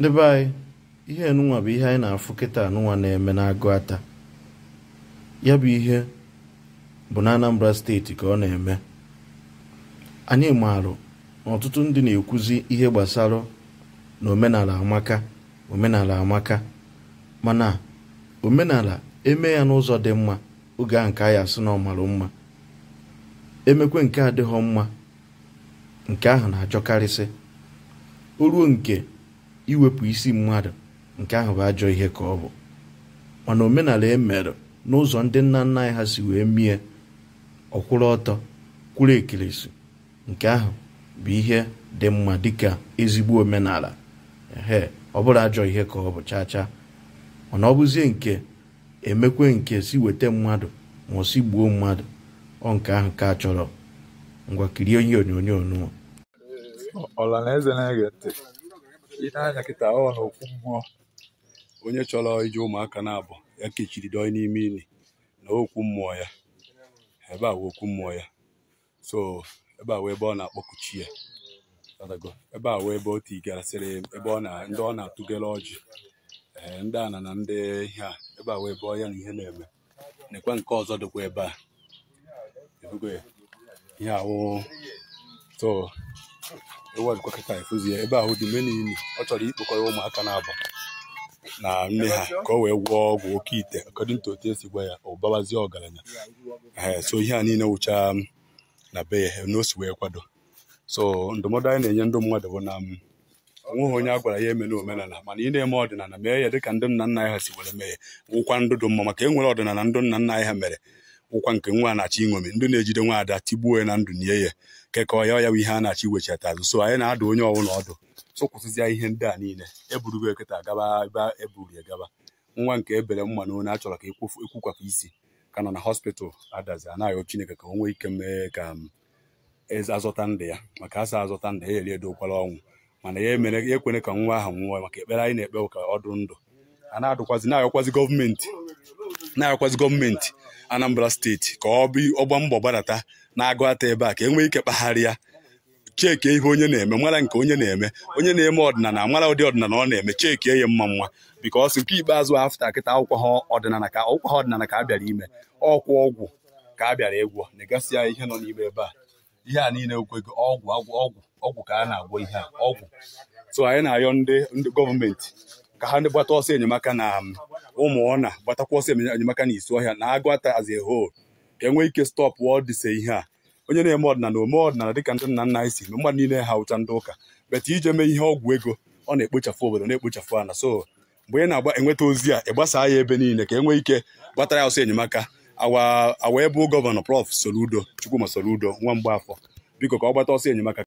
ndị be anyị ihe nụnwa bụ ihe anyị na-afụ kịta anụnwa na-eme n'agụ ata ya bụ ihe bụ na Anambra steeti ka ọ na-eme anyị maarụ na ọtụtụ ndị na-ekwuzi ihe gbasara na omenala amaka omenala amaka mana omenala eme ya n'ụzọ dị mma oge a nke anyị sị na ọmarụ mma emekwe nke adịghị mma nke ahụ na-achọkarịsị o ruo nke iwepụ isi mmadụ nke ahụ bụ ajọ ihe ka ọ bụ mana omenala emere n'ụzọ ndị nna nna anyị ha si wee mie ọkwụrụ ọtọ kwụrụ ekirisi nke ahụ bụ ihe dị mma dịka ezigbo omenala ehe ọ bụrụ ajọ ihe ka ọ bụ chaa mana ọ bụzie nke emekwe nke si weta mmadụ ma ọ si gbuo mmadụ ọ ahụ ka chọrọ ngwa kirie ihe onyonyo nụọ ọla na-ege ntị ile anya kịta ọ na okwu mmụọ onye chọrọ iji ụmụaka na-abụ ya kechiri doi n'ime ili na okwu mmụọ ya ebe a okwu mmụọ ya so ebe a wee ebe ọ na-akpọkuchi ya ebe a wee ebe o tigarasịrị ebe ọ na ndị ọ na-atụgara ọjị ee ndị ana na ndị ihe a ebe a wee ebe ọya na ihe na-eme nekwa nke ọzọ dịkwa ebe a ihe awụ so ịwajikwa kịta efuzie ebe ahụ dị mene ili ọ chọrọ ikpokọrọ ụmụaka na-abụ na nne ha ka o wee gwọọ ọgwụ oke ite according to otu esi gwa ya ọbabazie ọgaranya so ihe a niile wụcha na be ya na o si wee kwado so ndụmọdụ anyị na-enye ndụ mmadụ bụ na onweghị onye a gwara ya eme na omenala mana ị na-eme ọdịnala mee ya dịka ndị nna nna anyị ha si were mee ya wụkwa ndụ dị mma maka enwere nwere ọdịnala ndị nna nna anyị ha mere wụkwa nke nwa na-achọ iṅomi ndị na-ejide ada tigbuo ya na ndụ nye ya kekọọ ya ya bụ ihe a na-achọ iwechata azụ so anyị na-adụ onye ọbụla ọdụ so ihe ndị a niile eburugo eketa agaba ebe eburi ya gaba nwa nke ebere mma na onye a chọrọ ka ekwukwapụ isi ka nọ na hospital adazi anaghị Chineke ka o nwee ike mee ka um, e azọta ndụ ya maka asa azọta ndụ ya eri edokwala ọnwụ mana ya emere ya ekwene ka nwa ahụ nwụọ maka ekpere anyị na-ekpe ka ọ dụ ndụ a na-adụkwazi na-ayọkwazi gọọmenti na-ayọkwazi gọọmenti Anambra steeti ka ọ bụ ọgba mbọ gbadata na-agụ ata ebe a ka enwee ike kpagharịa. ya ihe onye na-eme mara nke onye na-eme onye na-eme ọdịnala mara ụdị ọdịnala ọ na-eme chekie ya mma mma bikọs nke ikpeazụ afta kịta akwụkwọ ha ọdịnala ka akwụkwọ ha ọdịnala ka a bịara ime ọkwụ ọgwụ ka a bịara ịgwọ negasị ya ihe nọ n'ime ebe a ihe a niile okwego ọgwụ ọgwụ ọgwụ ka a na-agwọ ihe a ọgwụ so anyị na ndị gọọmenti ka ha ndị gbata ọsọ enyemaka na um, ụmụ ọna gbatakwa ọsọ enyemaka na isi ọhịa na agụata ata as a whole ka enwee ike stọpụ ọ dịse ihe a onye na-eme ọdịnala ome ọdịnala dịka ndị nna nna anyị si mmadụ niile ha ụcha ndị ụka beta ije mee ihe ọgwụ ego ọ na-ekpochafụ obodo na-ekpochafụ ana so mgbe ị na-agba enweta ozi a ịgbasaa ya ebe niile ka enwee ike gbatara ya ọsọ enyemaka awa awa ebe gọvanọ prọf Soludo Chukwuma Soludo nwa mgbaafọ biko ka ọ gbata ọsọ enyemaka